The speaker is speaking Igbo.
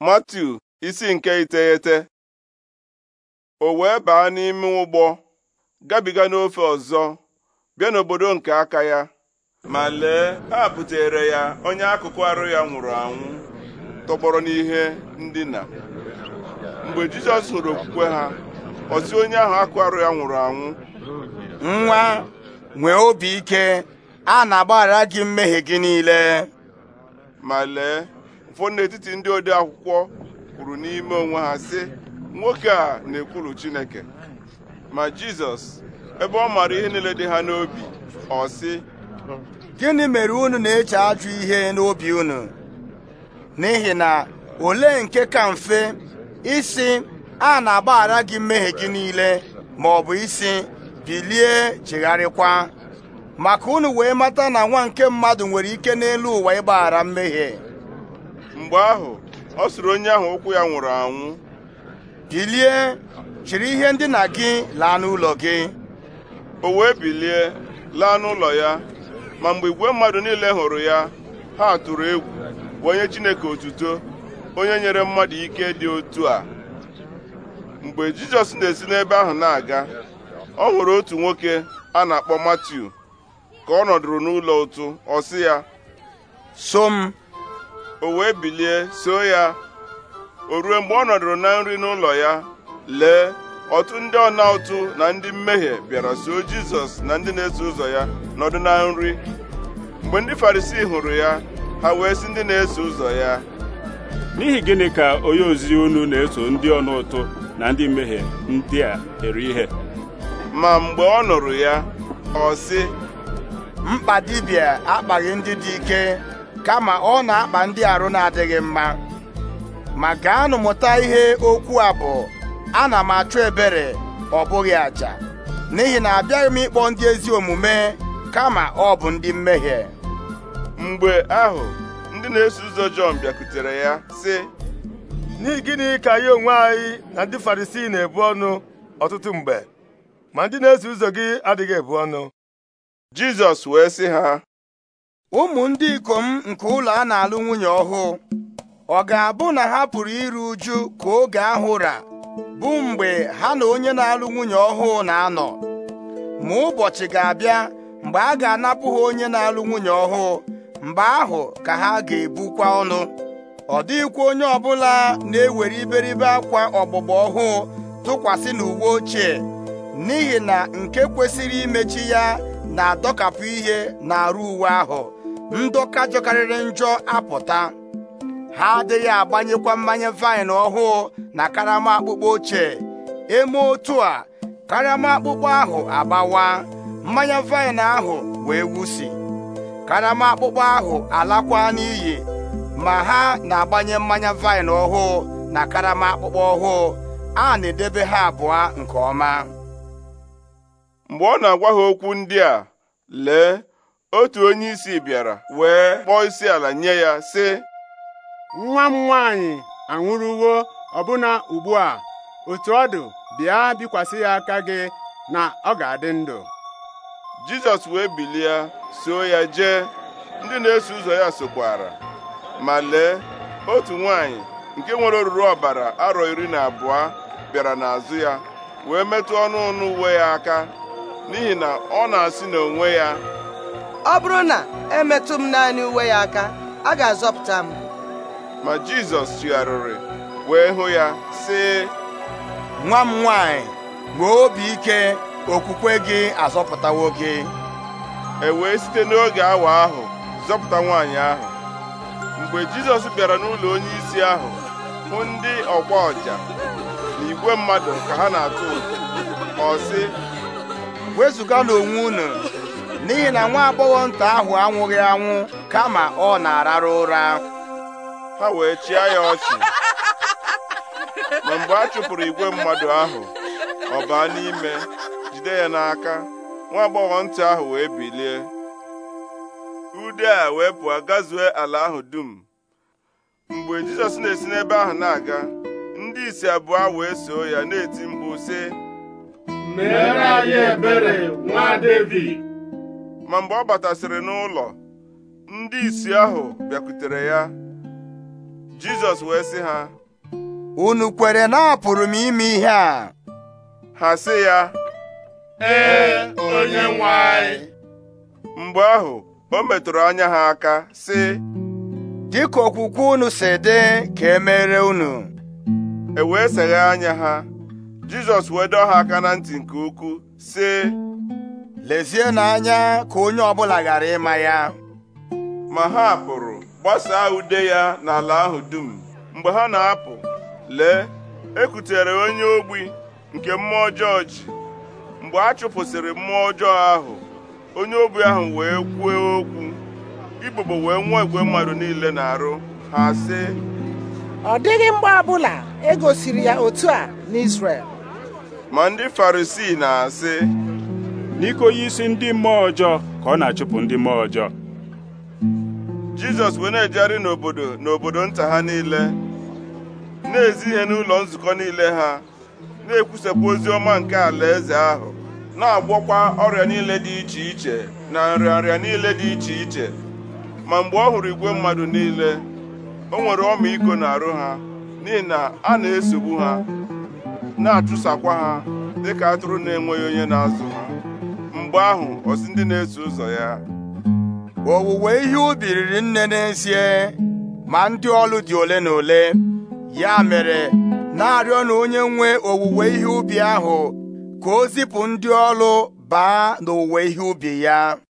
Matiu isi nke iteghete o wee baa n'ime ụgbọ gabiga n'ofe ọzọ bịa n'obodo nke aka ya ma lee ha butere ya onye akụkụ arụ ya nwụrụ anwụ tọgbọrọ n'ihe ndina mgbe Jizọs hụrụ okwukwe ha ọ sị onye ahụ akụ arụ ya nwụrụ anwụ nwa nwee obi ike a na-agbaghara gị mmehie gị niile ma lee ụfọdụ n'etiti ndị ode akwụkwọ kwuru n'ime onwe ha sị nwoke a na-ekwulu Chineke ma Jizọs ebe ọ maara ihe niile dị ha n'obi ọ sị gịnị mere unu na-eche ajụ ihe n'obi unu n'ihi na olee nke ka mfe isi a na-agbaghara gị mmehie gị niile ma ọ bụ isi bilie chegharịkwa maka unu wee mata na nwa nke mmadụ nwere ike n'elu ụwa ịgbaghara mmehie mgbe ahụ ọ sịrị onye ahụ ụkwụ ya nwụrụ anwụ bilie chịrị ihe ndina gị laa n'ụlọ gị o wee bilie laa n'ụlọ ya ma mgbe igwe mmadụ niile hụrụ ya ha tụrụ egwu onye Chineke otuto onye nyere mmadụ ike dị otu a mgbe Jizọs na-esi n'ebe ahụ na-aga ọ hụrụ otu nwoke a na-akpọ Matiu ka ọ nọdụrụ n'ụlọ ụtụ ọ sị ya so m o wee bilie so ya o ruo mgbe ọ nọdụrụ na nri n'ụlọ ya lee ọtụ ndị ọna ụtụ na ndị mmehie bịara soo jizọs na ndị na-eso ụzọ ya nọdụ na nri mgbe ndị farisii hụrụ ya ha wee sị ndị na-eso ụzọ ya n'ihi gịnị ka onye ozi unu na-eso ndị ọna ụtụ na ndị mmehie ndị a eri ihe ma mgbe ọ nụrụ ya ọ sị mkpa dibịa akpaghị ndị dị ike kama ọ na-akpa ndị arụ na-adịghị mma ma gaanụ mụta ihe okwu a bụ ana m achụ ebere ọ bụghị aja n'ihi na abịaghị m ịkpọ ndị ezi omume kama ọ bụ ndị mmehie mgbe ahụ ndị na-eso ụzọ Jọn bịakutere ya sị n'ihi gịnị ka anyị onwe anyị na ndị Farisii na-ebu ọnụ ọtụtụ mgbe ma ndị na-eso ụzọ gị adịghị ebu ọnụ Jizọs wee sị ha ụmụ ndị ikom nke ụlọ a na-alụ nwunye ọhụụ ọ ga-abụ na ha pụrụ iru uju ka oge ahụ ra bụ mgbe ha na onye na-alụ nwunye ọhụụ na-anọ ma ụbọchị ga-abịa mgbe a ga-anapụ ha onye na-alụ nwunye ọhụụ mgbe ahụ ka ha ga-ebukwa ọnụ ọ dịghịkwa onye ọbụla na-ewere iberibe akwa ọgbụgba ọhụụ tụkwasị n'uwe ochie n'ihi na nke kwesịrị imechi ya na-adọkapụ ihe n'arụ uwe ahụ ndọka jọkarịrị njọ apụta ha adịghị agbanyekwa mmanya vaịn ọhụụ na karama akpụkpọ ochie eme otu a karama akpụkpọ ahụ agbawa mmanya vaịn ahụ wee wusi karama akpụkpọ ahụ alakwa n'iyi ma ha na-agbanye mmanya vaịn ọhụụ na karama akpụkpọ ọhụụ a na-edebe ha abụọ nke ọma mgbe ọ na-agwa ha okwu ndị a lee otu onye isi bịara wee kpọọ isi ala nye ya sị nwa m nwaanyị anwụrụwo ọbụna ugbu a otu ọ dị bịa bikwasị ya aka gị na ọ ga-adị ndụ Jizọs wee bilie soo ya jee ndị na-eso ụzọ ya sokwara ma lee otu nwaanyị nke nwere oruru ọbara arọ iri na abụọ bịara n'azụ ya wee metụ ọnụ ọnụ uwe ya aka n'ihi na ọ na-asị n'onwe ya ọ bụrụ na emetụ m naanị uwe ya aka a ga-azọpụta m ma Jizọs tụgharịrị wee hụ ya sị nwa m nwanyị nwee obi ike okwukwe gị azọpụtawo gị e wee site n'oge awa ahụ zọpụta nwaanyị ahụ mgbe Jizọs bịara n'ụlọ onyeisi ahụ hụ ndị ọgba ọja na igwe mmadụ ka ha na-atụ ụtụ ọ sị wezụga n'onwe unu n'ihi na nwa agbọghọ nta ahụ anwụghị anwụ kama ọ na araru ụra ha wee chịa ya ọchị ma mgbe a chụpụrụ igwe mmadụ ahụ ọ baa n'ime jide ya n'aka nwa agbọghọ ntị ahụ wee bilie ude a wee pụọ gazue ala ahụ dum mgbe jizọs na-esi n'ebe ahụ na-aga ndị isi abụọ wee soo ya na-eti mkpu sị anyị ebere nwa David. ma mgbe ọ batasịrị n'ụlọ ndị isi ahụ bịakwutere ya Jizọs wee sị ha unu kwere na apụrụ m ime ihe a ha sị ya ee onye nwe mgbe ahụ o metụrụ anya ha aka sị dịka okwukwe unu si dị ka emere unu e wee seghe anya ha Jizọs wee dọọ ha aka na ntị nke ukwuu sị lezie n'anya ka onye ọbụla ghara ịma ya ma ha pụrụ gbasaa ude ya n'ala ahụ dum mgbe ha na-apụ lee ekutere onye ogbi nke mmụọ ọjọọ ji mgbe a chụpụsịrị mmụọ ọjọọ ahụ onye ogbi ahụ wee kwuo okwu igbogbo wee nwee igwe mmadụ niile na-arụ ha sị ọ dịghị mgbe ọbụla e ya otu a n'Izrel ma ndị Farisii na-asị n'iko onye isi ndị mmụọ ọjọọ ka ọ na-achụpụ ndị mmụọ ọjọọ jizọs wee na-ejegharị n'obodo n'obodo nta ha niile na-ezi ihe n'ụlọ nzukọ niile ha na-ekwusapụ ozi ọma nke alaeze ahụ na-agwọkwa ọrịa niile dị iche iche na nrịanrịa niile dị iche iche ma mgbe ọ hụrụ igwe mmadụ niile o nwere ọmịiko n'arụ ha n'ihi na a na-esogbu ha na-achụsakwa ha dịka atụrụ na-enweghị onye na-azụ mgbe ahụ o ndị na-eso ụzọ ya owuwe ihe ubi riri nne n'ezie ma ndị ọlụ dị ole na ole ya mere na-arịọ na onye nwe owuwe ihe ubi ahụ ka o zipụ ndị ọlụ baa n'owuwe ihe ubi ya